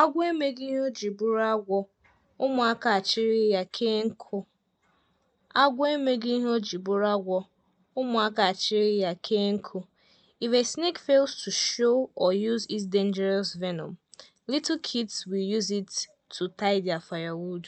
Agwọ emeghị ihe o ji bụrụ agwọ, ụmụaka achịrị ya kee nkụ. Agwọ emeghị ihe o ji bụrụ agwọ, ụmụaka achịrị ya kee nkụ. If a snake fails to show or use its dangerous venom, little kids will use it to tie their firewood.